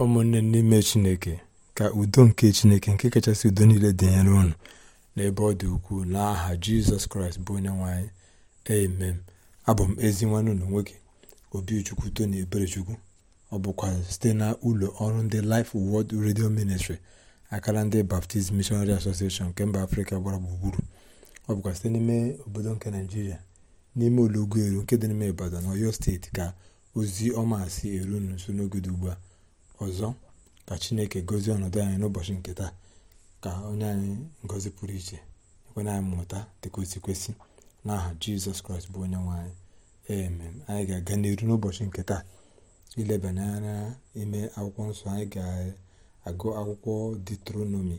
ụmụnne n'ime chineke ka udo nke chineke nke kachasị udo niile dịnyere unu n'ebe ọ dị ukwuu n'aha jizọs kraịst bụ onye nwanyị emem abụ m ezi nwanne ụlọ nwoke obichukwu tony eberechukwu ọ bụkwa site na ụlọ ọrụ ndị life word redio ministry akara ndị baptist missionary association nke mba afrịka gbara gburugburu ọ bụkwa site n'ime obodo nke naijiria n'ime ụlọ eru nke dị n'ime ibadan oyo steeti ka ozi ọma si eru nso n'oge dị ugbu a ọzọ ka chineke gozie ọnọdụ anyị n'ụbọchị nke taa ka onye anyị ngozi pụrụ iche ekwe anyị mmụta dịka o si kwesị n'aha jizọs kraịst bụ onye nwe anyị anyị ga-aga n'iru n'ụbọchị nke taa ilebanye ime akwụkwọ nsọ anyị ga-agụ akwụkwọ detronomi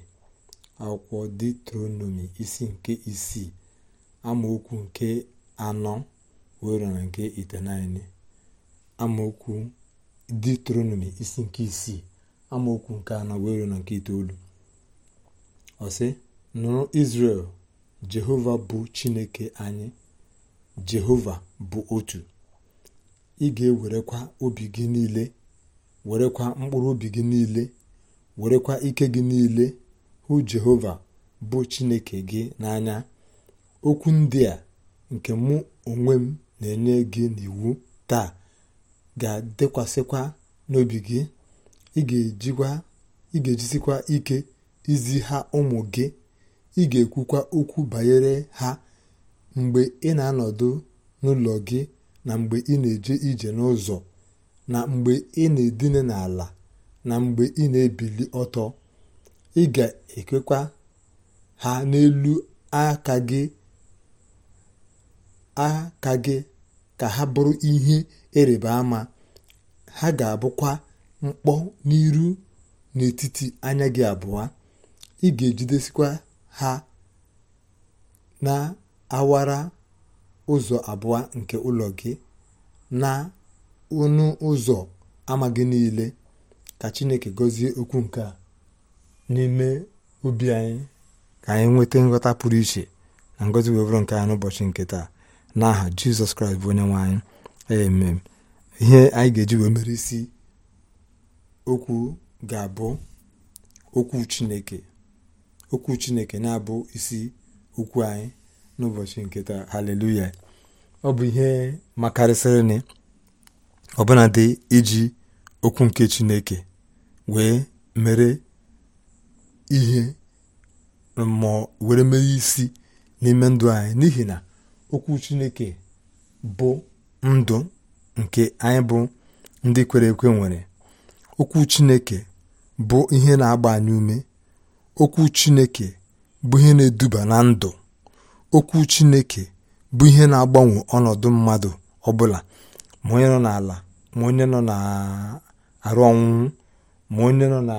akwụkwọ detronomi isi nke isii amaokwu nke anọ wee na nke itenaine amaokwu deuteronomi isi nke isii amaokwu nke anọ na na nke itoolu ọsị nụrụ israel jehova bụ chineke anyị jehova bụ otu ị ga-ewerekwa obi gị niile werekwa mkpụrụ obi gị niile werekwa ike gị niile hụ jehova bụ chineke gị n'anya okwu ndị a nke mụ onwe m na-enye gị n'iwu taa ga-adịkwasịkwa n'obi gị ị ga ejisikwa ike izi ha ụmụ gị ị ga-ekwukwa okwu banyere ha mgbe ị na-anọdụ n'ụlọ gị na mgbe ị na-eje ije n'ụzọ na mgbe ị na-edina n'ala na mgbe ị na-ebili ọtọ ị ga ekwekwa ha n'elu aka gị aka gị ka ha bụrụ ihe ịrịba ama ha ga-abụkwa mkpọ n'iru n'etiti anya gị abụọ ị ga-ejidesikwa ha na awara ụzọ abụọ nke ụlọ gị na ọnụ ụzọ ama gị niile ka Chineke gọzie okwu nke a n'ime obi anyị ka anyị nweta nghọta pụrụ iche na ngọzi wee bụrụ nke anyị n'ụbọchị nke taa n'aha jizọs kraịst bụ onye nwe anyị amen ihe anyị ga-eji wee mere isi okwu ga-abụ okwu chineke okwu chineke na-abụ isi okwu anyị n'ụbọchị nke taa haleluya ọ bụ ihe makarịsịrịnị ọbụla dị iji okwu nke chineke wee mere ihe mmụọ were mere isi n'ime ndụ anyị n'ihi na okwu chineke bụ ndụ nke anyị bụ ndị kwere ekwe nwere okwu chineke bụ ihe na-agba anyị ume okwu chineke bụ ihe na-eduba na ndụ okwu chineke bụ ihe na-agbanwe ọnọdụ mmadụ ọbụla ma onye nọ n'ala ma onye nọ na-arụ ọnwụnwụ ma onye nọ na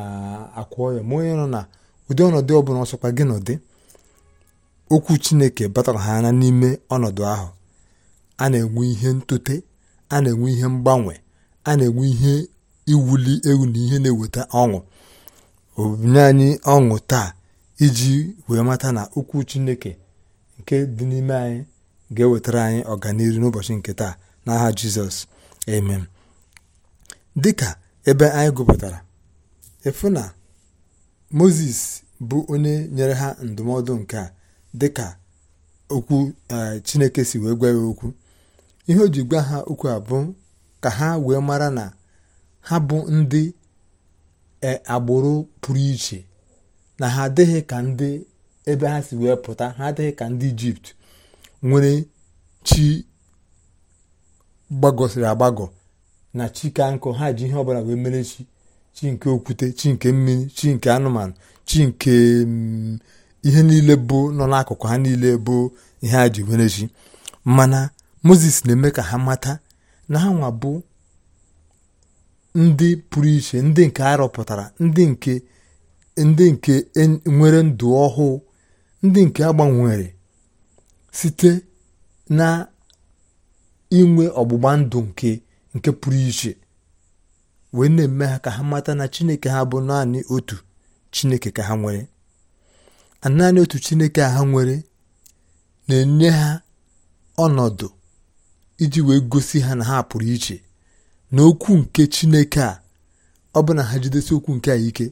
akwa ọya ma onye nọ na ụdị ọnọdụ ọbụla ọsọkwa gị nọdị okwu Chineke batara ha anya n'ime ọnọdụ ahụ a na-enwe ihe ntute a na-enwe ihe mgbanwe a na-enwe ihe iwuli ewu na ihe na-eweta ọṅụ obinye anyị ọṅụ taa iji wee mata na okwu Chineke nke dị n'ime anyị ga-ewetara anyị ọganihu n'ụbọchị nke taa n'aha Jizọs amen dịka ebe anyị gụpụtara efu na moses bụ onye nyere ha ndụmọdụ nke a dịka okwu e, chineke si wee gwa ya okwu ihe o ji gwa ha okwu abụ ka ha wee mara na ha bụ ndị e, agbụrụ pụrụ iche na ha adịghị ka ndị ebe ha si wee pụta ha adịghị ka ndị ijipt nwere chi gbagọsịrị agbagọ na chi ka nkụ ha ji ihe ọbụla wee mere chi chi nke okwute chi nke mmiri chi nke anụmanụ chi nke mm, ihe niile bụ nọ n'akụkụ ha niile bụ ihe a ji were chi mana moses na-eme ka ha mata na ha nwa bụ ndị pụrụ iche ndị nke a rụpụtara ndị nke ndị nke e nwere ndụ ọhụụ ndị nke agbanwere site na inwe ọgbụgba ndụ nke nke pụrụ iche wee na-eme ha ka ha mata na chineke ha bụ naanị otu chineke ka ha nwere naanị otu chineke a ha nwere na-enye ha ọnọdụ iji wee gosi ha na ha pụrụ iche na okwu nke chineke a ọ bụ na ha jidesi okwu nke a ike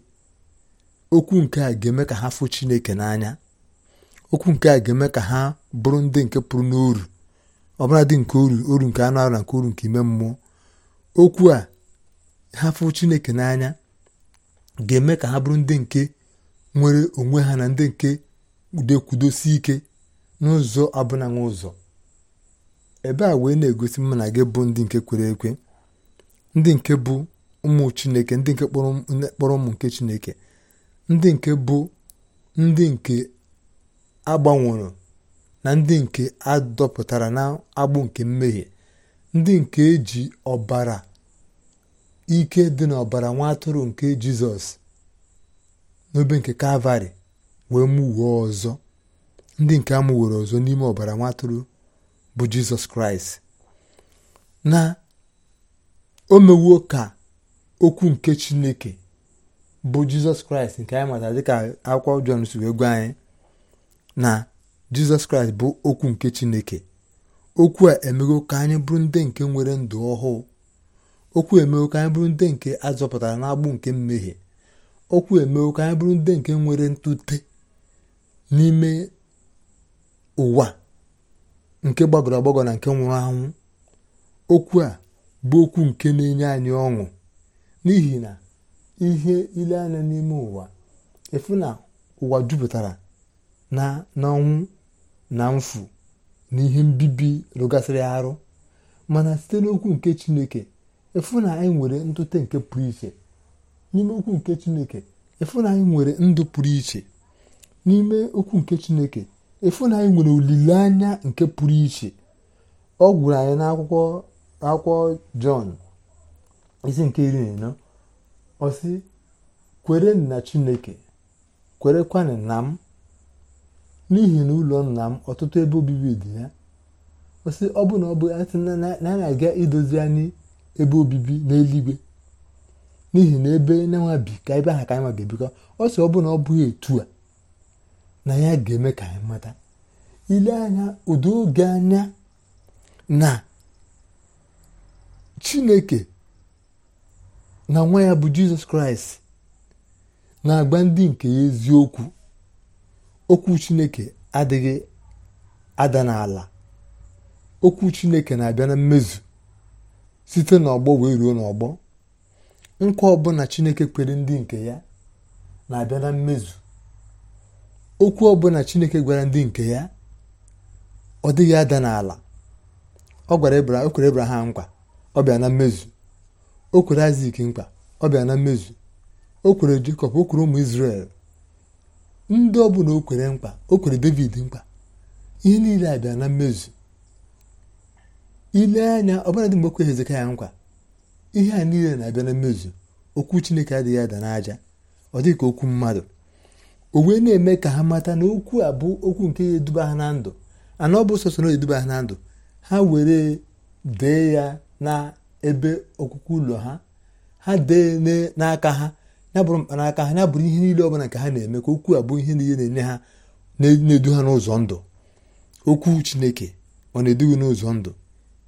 okwu nke a ga-eme ka ha fụ chineke n'anya okwu nke a ga-eme ka ha bụrụ ndị nke pụrụ n'oru bụla dị nke oru oru nke anụ arụ na nke oru nke ime mmụọ okwu a ha fụ chineke n'anya ga-eme ka ha bụrụ ndị nke nwere onwe ha na ndị nke dekwudosi ike n'ụzọ abụna ụzọ ebe a wee na-egosi na gị bụ ndị nke kwere ekwe ndị nke bụ ụmụ chineke ndị nke kpọrọ ụmụ nke chineke ndị nke bụ ndị nke agbanwere na ndị nke adọpụtara na agbụ nke mmehie ndị nke eji ọbara ike dị n'ọbara nwa atụrụ nke jizọs n'obe nke kalvarị wee mụwuo ọzọ ndị nke amụwere ọzọ n'ime ọbara nwatụrụ bụ jizọs kraịst na o mewuo ka okwu nke chineke bụ jizọs kraịst nke anyị matara dịka akwụkwọ jọn si wee gwa anyị na jizọs kraịst bụ okwu nke chineke okwu a emego ka anyị bụrụ ndị nke nwere ndụ ọhụụ okwu emego ka anyị bụrụ ndị nke azọpụtara n'agbụ nke mmehie okwu emewo ka anyị bụrụ ndị nke nwere ntute n'ime ụwa nke gbagọrọ agbagọ na nke nwụrụ anwụ okwu a bụ okwu nke na-enye anyị ọṅụ n'ihi na ihe ile anya n'ime ụwa efu na ụwa jupụtara na n'ọnwụ na mfu na ihe mbibi rụgasịrị arụ mana site n'okwu nke chineke efu na anyị e nwere ntute nke pụrụ iche n'ime okwu nke chineke ịfụnanya nwere ndụ pụrụ iche n'ime okwu nke chineke nwere olileanya nke pụrụ iche ọ gwụrụ anyị n'akwụkwọ akwụkwọ jọn isi nke iri na ịnọ ọ kwere na chineke kwerekwana na m n'ihi na ụlọ nna m ọtụtụ ebe obibi dị ya ọ ọ bụ na ọ bụ na anyị na-aga idozi anyị ebe obibi n'eluigwe n'ihi na ebe na bi ka ebe aha ka anyị ebikọ ọ sị ọ bụ na ọ bụghị etu a na ya ga-eme ka anyị mata ile anya ụdị oge anya na chineke na nwa ya bụ jizọs kraịst na-agba ndị nke ya eziokwu okwu chineke adịghị ada n'ala okwu chineke na-abịa na mmezu site n'ọgbọ wee ruo n'ọgbọ nkwa ọbụla chineke kwere ndị nke ya na-abịa na mmezu okwu ọbụla chineke gwara ndị nke ya ọ dịghị ada n'ala ọ gwara o kwere nkwa ọ bịa na mmezu o kwere aziki mkpa ọ bịa na mmezu o kwere Jekọb o kwere ụmụ israel ndị ọbụla o kwere o kwere David mkpa ihe niile abịa na mmezu ile anya ọbụla mgbe o kwere Hezekaya nkwa ihe a niile na-abịa na mmezu okwu chineke adịghị ada n'aja ọ dịghị ka okwu mmadụ o wee na-eme ka ha mata na okwu a bụ okwu nke ya eduba ha na ndụ ana ọ bụ sọsọ na eduba ha na ndụ ha were dee ya na ebe ọkụkụ ụlọ ha ha dee n'aka ha ya bụrụ mkpanaka ha ya bụrụ ihe niile ọbụla nke ha na-eme ka okwu a bụ ihe niile na-enye ha na-edu ha n'ụzọ ndụ okwu chineke ọ na-edughị n'ụzọ ndụ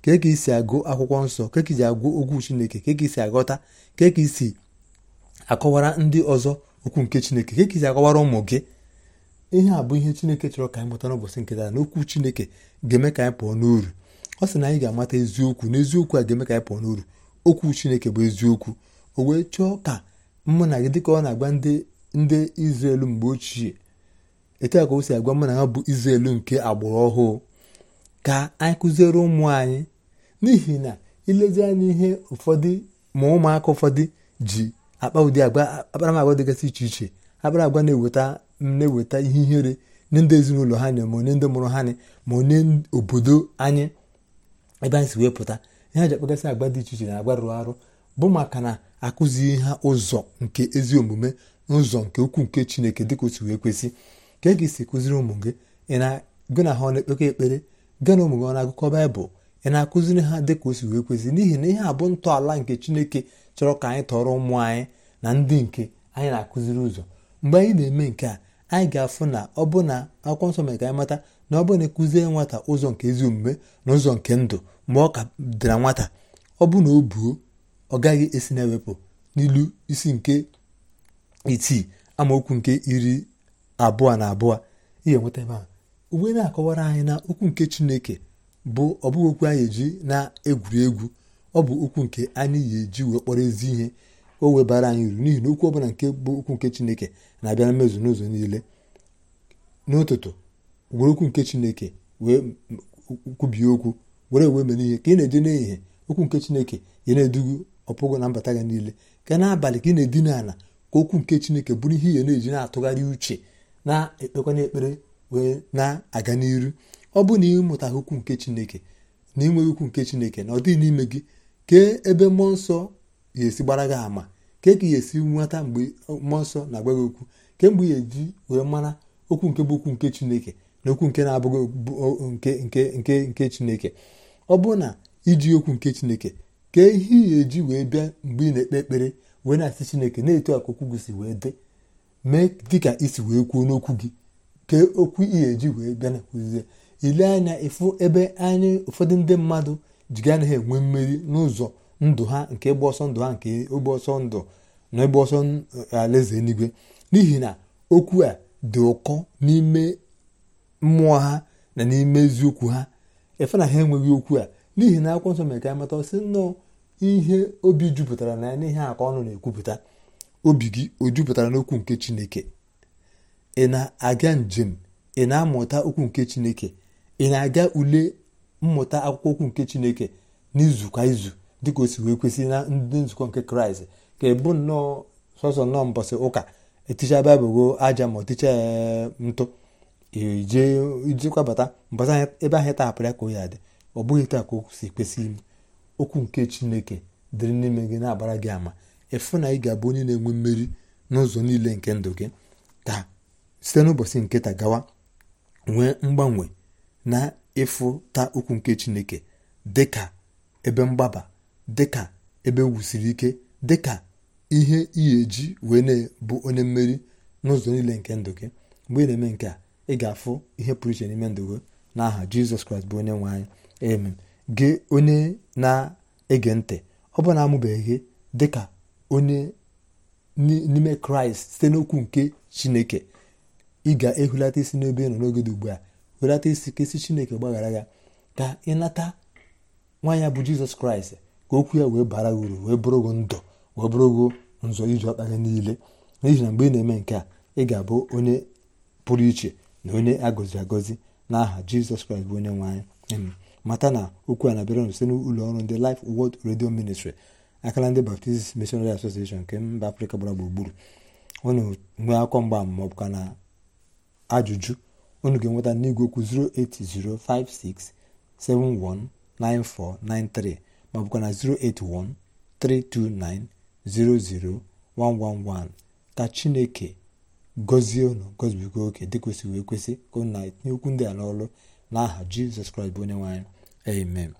ka ka isi agụ akwụkwọ nsọ ka ka isi agụ okwu chineke ka ka isi aghọta ka ka isi akọwara ndị ọzọ okwu nke chineke ka ka isi akọwara ụmụ gị ihe a bụ ihe chineke chọrọ ka anyị mụta n'ụbọchị nke taa na okwu chineke ga-eme ka anyị pụọ n'uru ọ sị na anyị ga-amata eziokwu na a ga-eme ka anyị pụọ n'uru okwu chineke bụ eziokwu o wee chọọ ka mụ na gị dị ka ọ na-agba ndị izrel mgbe ochie etu a ka o si agwa mụ na ha bụ izrel nke agbụrụ ọhụụ ka anyị kụziere ụmụ anyị n'ihi na ilezi anya ihe ụfọdụ ma ụmụaka ụfọdụ ji akpa ụdị agwa akparamagwa dịgasị iche iche akparamagwa na-eweta na-eweta ihe ihere nye ndị ezinụlọ ha nye ma onye ndị mụrụ ha nye ma onye obodo anyị ebe anyị si wee pụta ihe ji akpagasị agwa dị iche iche na agwa rụrụ arụ bụ maka na akụzighị ha ụzọ nke ezi omume ụzọ nke ukwuu nke chineke dịka otu wee kwesị ka e ga-esi kụziri ụmụ gị gị na ha ọ na-ekpekọ ekpere gị na ụmụ gị ọ na-agụkọ baịbụl ị na-akụziri ha dị ka o si wee kwesị n'ihi na ihe abụ ntọala nke chineke chọrọ ka anyị tọrọ ụmụ anyị na ndị nke anyị na-akụziri ụzọ mgbe anyị na-eme nke a anyị ga-afụ na ọ bụ na akwụkwọ nsọ mere ka anyị mata na ọ bụ na ekụzie nwata ụzọ nke ezi omume na ụzọ nke ndụ mgbe ọ ka dara nwata ọ bụ na o buo ọ gaghị esi na-ewepụ n'ilu isi nke itii amaokwu nke iri abụọ na abụọ ihe nweta ebe a ugbe na-akọwara anyị na okwu nke chineke bụ ọbụghị okwu anyị eji na-egwuri egwu ọ bụ okwu nke anyị yi eji wee kpọrọ ezi ihe o webara anyị uru n'ihi na okwu ọbụla nke bụ okwu nke chineke na-abịa na mmezu n'ụzọ niile n'ụtụtụ were okwu nke chineke wee kwubie okwu were wee mere ihe ka ị na-eje n'ehihie okwu nke chineke ya na-edugu ọpụgụ na mbata gị niile ka n'abalị ka ị na-edina ala ka okwu nke chineke bụrụ ihe ya na-eji na-atụgharị uche na-ekpekwana ekpere wee na-aga n'iru ọ bụ na ịmụtaghị okwu nke chineke na inweghị okwu nke chineke na ọ dịghị n'ime gị kee ebe mmụọ nsọ ga-esi gbara gị ama kee ka ihe ga-esi nweta mgbe mmụọ nsọ na-agwa gị okwu kemgbe ya eji wee mara okwu nke bụ okwu nke chineke na okwu nke na-abụghị nke nke nke chineke ọ bụ na iji okwu nke chineke kee ihe ị ga-eji wee bịa mgbe ị na-ekpe ekpere wee na-asị chineke na eto aka okwu gị si wee dị mee dịka isi wee kwuo n'okwu gị kee okwu ị ga-eji wee bịa na kwuzie ile anya ịfụ ebe anyị ụfọdụ ndị mmadụ ji ganaghị enwe mmeri n'ụzọ ndụ ha nke ịgba ọsọ ndụ ha nke ịgba ọsọ ndụ na ịgba ọsọ e, alaeze eluigwe n'ihi na okwu a dị ụkọ n'ime mmụọ ha na n'ime eziokwu ha efe na ha enweghị okwu a n'ihi na akwụkwọ nsọ mere ka amata sị nnọọ ihe obi jupụtara na ya n'ihe a ka ọnụ na-ekwupụta obi gị o jupụtara n'okwu nke chineke ị na-aga njem ị na-amụta okwu nke chineke ị na-aga ule mmụta akwụkwọ okwu nke chineke n'izu kwa izu dịka o si wee kwesị na ndị nzukọ nke kraịst ka ebu nnọọ sọsọ nnọọ mbọsị ụka eticha baịbụl aja ma ọticha e, ntụ ijekwabata mbọsị ebe ahụ tahapụrụ ya ka o ya dị ọ bụghị taa ka o si kwesị ime okwu nke chineke dịrị n'ime gị na-agbara gị ama ịfụ na ị ga-abụ onye na-enwe mmeri n'ụzọ niile nke ndụ gị ka site n'ụbọchị nke ta gawa nwee mgbanwe na ịfụta okwu nke chineke dịka ebe mgbaba dịka ebe wusiri ike dịka ihe iyi eji wee na-bụ onye mmeri n'ụzọ niile nke ndụ gị mgbe ị na-eme nke a ị ga-afụ ihe pụrụ iche n'ime ndụ gị n'aha jizọs kraịst bụ onye nwe anyị amen gị onye na-ege ntị ọ bụ na-amụbeghị gị dịka onye n'ime kraịst site n'okwu nke chineke ị ga-ehulata isi n'ebe ị nọ n'oge ugbu a welata isi ka isi chineke gbaghara ya ka ịnata nwa ya bụ jizọs kraịst ka okwu ya wee bara uru wee bụrụ bụrụgo ndụ wee bụrụ bụrụgo nzọ iji ọkpa gị niile n'ihi na mgbe ị na-eme nke a ị ga-abụ onye pụrụ iche na onye agọzi agọzi n'aha jizọs kraịst bụ onye nwe anyị mata na okwu a na-abịara site n'ụlọ ọrụ ndị lif Word redio Ministry akara ndị Baptist Missionary Association nke mba afrịka gbara gburugburu ọ na-enwe akwụkwọ mgbaama maọbụ ka na ajụjụ unu ga-enweta n'igwe okwu 08056719493 ma ọ bụkwa na 08132900111 ka chineke gọzie unu gọzibigo oke dị kwesịrị kwesị ka ụnụ na-etinye okwu ndị a n'ọrụ n'aha jizọs kraịst bụ onye nwe amen